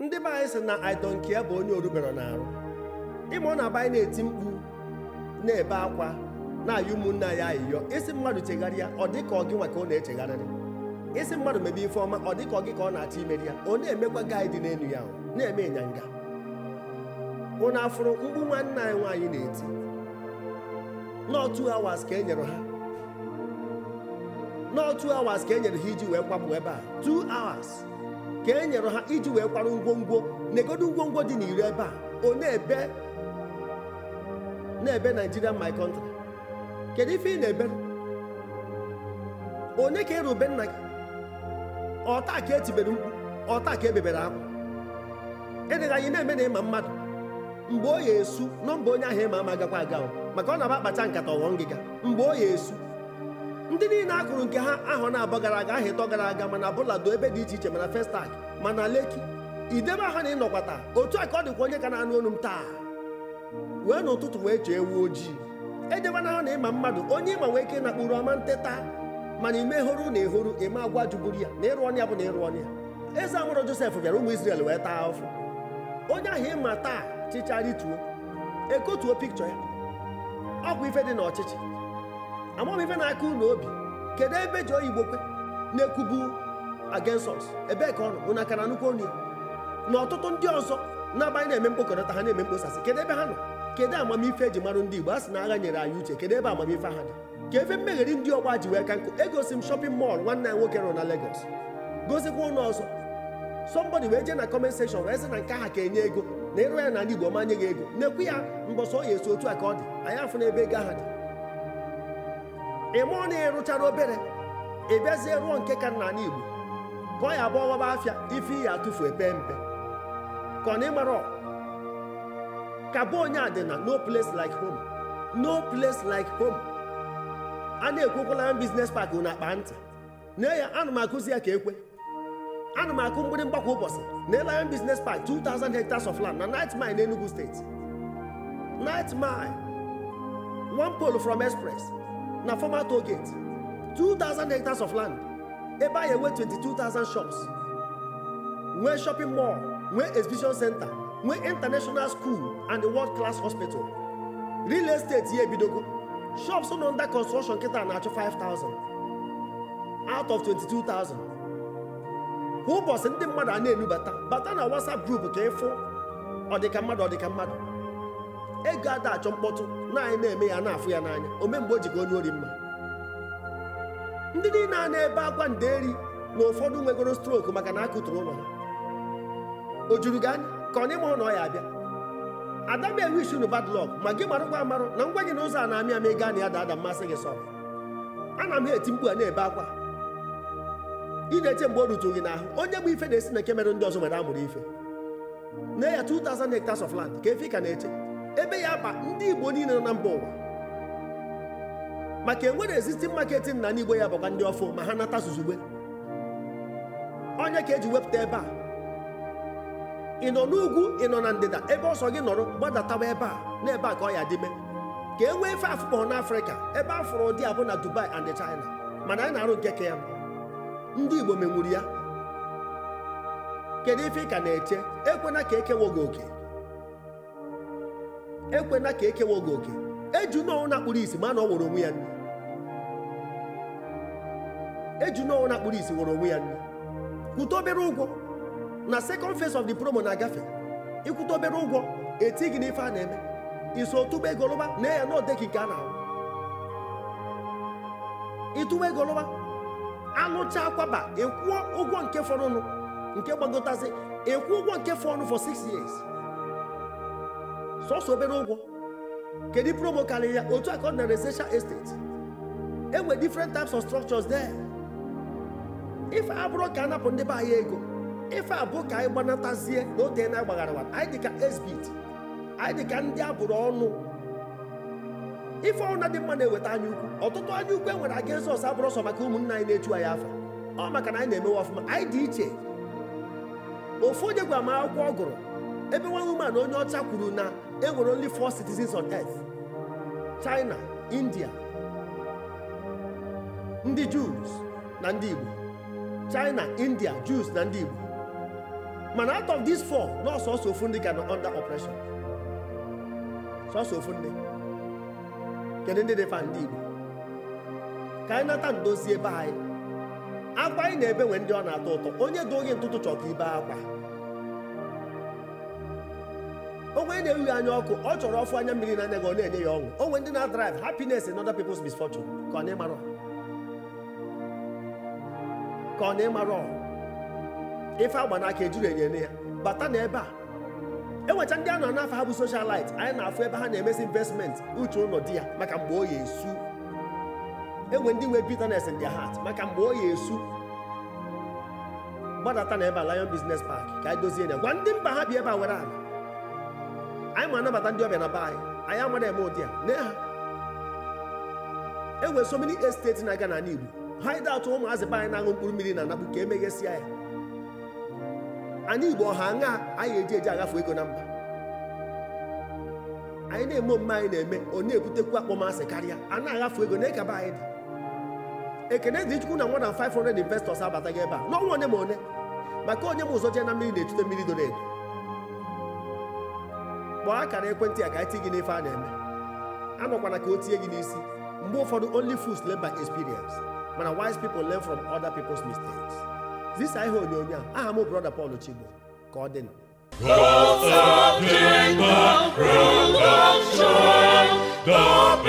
ndị be anyị sị na idonkia bụ onye orubere n'arụ ọ na aba anyị na-eti mkpu na-ebe akwa na-ayị ụmụnne anyị ayịyọ isi mmadụ chegharịa ọ dị ka ọ gị nwa ka ọ na-echegharịrị isi mmadụ mebe ife ọma ọ dị ka ọ gị ka ọ na-achọ imeri ya ọ na-emekwa gị dị n'elu ya na-eme ịnyanga ụnụ afụrụ mkpu nwanne anyị nwaanyị na-eti n'otu awas ka e nyere ha n'otu awas ka e nyere ha iji wee kwapụ ebe a 2 hours ka e nyere ha iji wee kwara ngwongwo na-egodo dị n'iri ebe a one na-ebe na-ebe my country kedu ife ị na-ebere onye ka ịrube nna gị ọta ka etibere mkpu ọta ka ebebere akwa ịdịghị e anyị na-eme na ịma mmadụ mgbe ọ ya esu nọ mgbe onye ahụ ịma ama agakwa aga maka ọ na-aba akpacha nkata ọghọ ngịga mgbe ọ esu ndị niile a nke ha ahọ na-abọ gara aga aha ịtọ gara aga mana bụladụ ebe dị iche iche mana festak mana leki idebe ahụ na ịnọkwata otu a ka ọ dịkwa onye ka na-anụ onu m taa wee n'ụtụtụ wee chee ewu ojii edebe na ahụ na ịma mmadụ onye ịma nwee ike ịnakpụrụ ọma nteta mana imehụrụ na ehụrụ ime agwa juburu ya na ịrụ ọnya bụ na ịrụ ọnya eze amụrụ josef bịara ụmụ isrel wee taa afọ onye ahụ ịma taa chịcha rituo ekotuo pikchọ ya ọkwa ife dị n'ọchịchị amam ife na-aka ụlọ obi kedu ebe ji oyibo kwe na-ekwubu against us ebee ka ọ nọ ụna akara nnukwu onu ya na ọtụtụ ndị ọzọ na-abanye na-eme mkpokọrịta ha na-eme mkposasị kedu ebe ha nọ kedu amamife eji marụ ndị Igbo a sị na agha nyere anyị uche kedu ebe amamife ha dị ka efe mmegheri ndị ọgba ji wee ka nkụ egosi m shọpin mọl nwanne ya nwoke nọ na Lagos gozikwa ụlọ ọzọ sọmbọdị wee jee na kọment sekshọn wee sị na nke ha ka enye ego na ịrụ ya na ndị Igbo manye gị ego na-ekwu ya mbọsọ ya esi otu a ka ọ dị anyị afụ na ebe ego aha dị ịmụọ na ịrụchara obere ịbịazie ruo nke ka nna ka ọ ya bụ ọghọba afịa ife iyi atụfu epe mpe ka ọ na ịmara ka bụ onye adịna no place like home no place like home a na-ekwekwala biznes pak na akpa ntị na ya anụ m akụzi ya ka ekwe Anụ m akụ mgbịrị mgbakwa ụbọchị na Elion Business Park 2000 hectares of land na night mine na Enugu steeti night mine one pole from express na former toll gate two thousand hectares of land ebe twenty-two thousand shops nwee shopping mall nwee exhibition center nwee international school and the world class hospital real estate here ebidogo shops nọ under construction kịta na five thousand out of twenty-two 22000 ụbọchị ndị mmadụ a na-enubata bata na whatsapp group ka ịfụ ọdịka mmadụ ọdịka mmadụ ego ada achọ mkpọtụ naanị na-eme ya na-afụ ya n'anya ome mgbe o jigo onye ori mma ndị niile a na-ebe akwa nderi na ụfọdụ nwegoro strok maka na akụtụrụ ụlọ ha o juru gị anya ka ọ na ịma na ya abịa ada m enwe isi bad ma gị mara ngwa amarụ na ngwa gị na ụzọ a na-amị amị gaa na ya da ada mmasị gị sọ ana m eti mkpu a na-ebe akwa ị na-eche mgbe o rutu gị n'ahụ onye bụ ife na-esi na nke mere ndị ọzọ nwere amụrụ ife na ya 2000 hectares of land ka efe ka na-eche ebe ya ba ndị igbo niile nọ na mba ụwa maka enwere existing marketing na n'igbo ya bụkwa ndị ọfọ ma ha nata zuzugbe onye ka eji wepụta ebe a ị nọ n'ugwu ị nọ na ndịda ebe ọsọ gị nọrọ gbadatawa ebe a na ebe a ka ọ ya dịme ka e nwee fe afụkpọ n'afrịka ebe a fụrụ ụdị abụ na dubai and china mana anyị na-arụ nke ka ya ndị igbo menwuru ya kedu ife ị ka na-eche ekwena ka ekewo gị oke ekwena ka ekewa oge oke eju n'ọnwụ na-akpụrụ isi ma na ọ wụrụ onwe ya nri eju na-akpụrụ isi wụrụ onwe ya nri kwụta obere ụgwọ na second fes ọf the promo na-agafe ịkwụta obere ụgwọ eti gị n'ife a na-eme iso tụba ego lụba na ya na odeki nke a na-ahụ ịtụba ego lụba alụcha akwaba ịkwụọ ụgwọ nke fọrọnụ nke gbagotazị ịkwụ ụgwọ nke fọrọnụ fọ 6 years sọsọ obere ụgwọ kedu promo karịrị ya otu aka ọ na estate enwere different types of structures there ife abụrụ ka anapụ ndị be anyị ego ife abụ ka anyị gbanatazie na ote na agbagharawa anyị dịka esbit anyị ka ndị abụrụ ọnụ ife ọrụ na dị mma na-eweta anya ukwu ọtụtụ anya ukwu enwere aga ezọs abụrụ ọsọ maka ụmụnna anyị na-echu anyị afọ ọ maka na anyị na-emewe ọfụma anyị dị iche ofu onye gwa m akwụkwọ ọ gụrụ ebe nwa woman onye ọcha kwuru na enwere only four citizens on earth China India ndị Jews na ndị Igbo China India Jews na ndị Igbo mana out of these four na ọsọsọ ofu ndị ga na under operation sọsọ ofu ndị kedu ndị dịfa ndị Igbo ka anyị nata ndozi ebe anyị akwa anyị na-ebe nwe ndị ọ na-atọ ụtọ onye dị oge ntụtụ chọ ka ibe akwa onwe na-ewu ya anya ọkụ ọ chọrọ ọfụ anya mmiri anya gị ọ na-enye ya ọṅụ onwe ndị na-adrive happiness in other people's misfortune ka ọ na-ịmarọ ka ọ na-ịmarọ ife agba n'aka ejuru enye ya bata na ebe a enwecha ndị a nọ n'afọ ha bụ socialite anyị na-afụ ebe ha na-emesi investment uche ụlọ di ya maka mgbe o ya esu enwe ndị nwe bitterness in their heart maka mgbe o ya esu gbadata na ebe a Lion Business Park ka anyị dozie ya gwa ndị mba ha bi ebe a nwere ala anyị ma anabata ndị ọbịa na be anyị anyị amara eme ụdị a nye ha e so esteti na-aga n'ala Igbo ha ide atụ ụmụazị be anyị na-aṅụ mkpụrụ mmiri na anakpu ka emeghesịa ya anyị Igbo ọha aṅa anyị eji eji agafe ego na mba anyị na-eme omume anyị na-eme ọ na-ebutekwu akpọmasị karịa a na-agafe ego na kaba anyị dị ekene dị chukwu na nwa na 500 investors abataghị ebe a n'ọnwa one ma one maka onye m ụzọ jee na mmiri na-etute mmiri doro edo kpọọ akara ekwentị a ka anyị ti gị n'ife a na-eme a anọkwana ka o tie gị n'isi mgbe ụfọdụ only fools learn by experience mana wise people learn from other people's mistakes zisa ihe onyonyo a aha m brother Paul Chigbo ka ọ dị God's